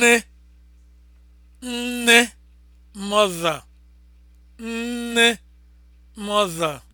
nne nne mother nne mother